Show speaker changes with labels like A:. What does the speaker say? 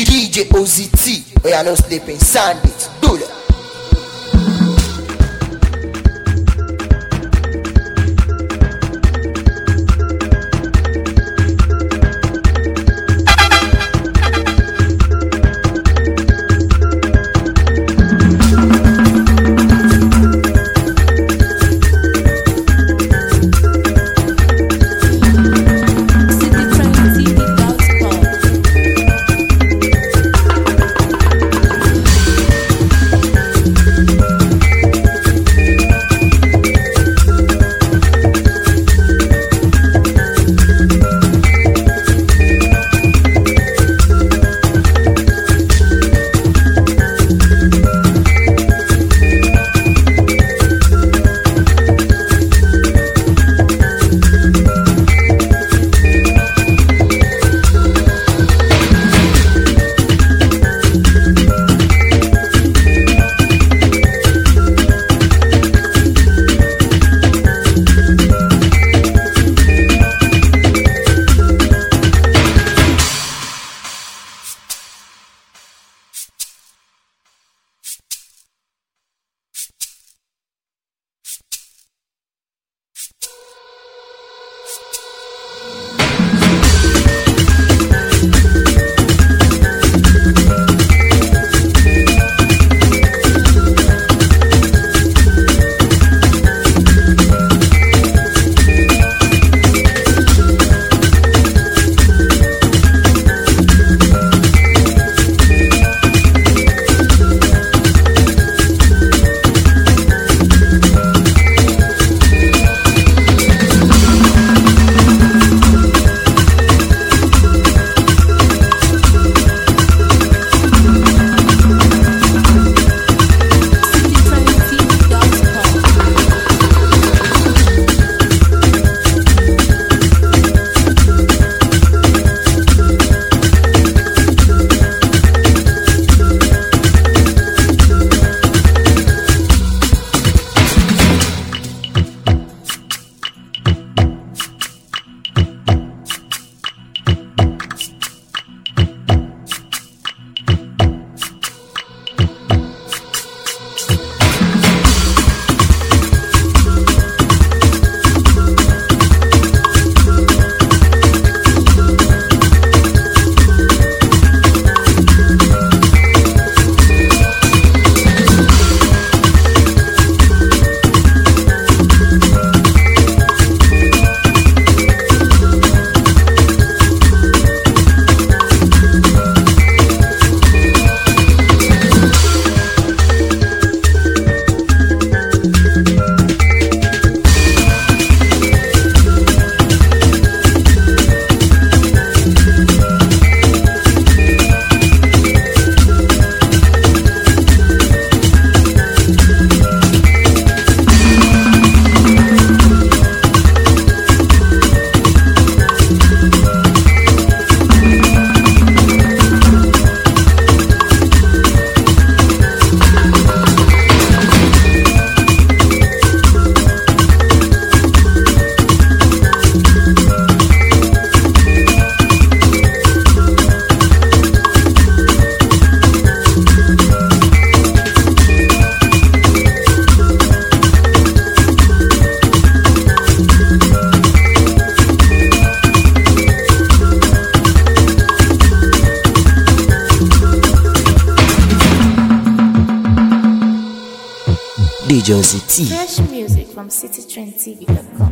A: iri ije ozi tii ti sande.
B: DJ Ozzy T. Fresh
C: music from citytrendtv.com.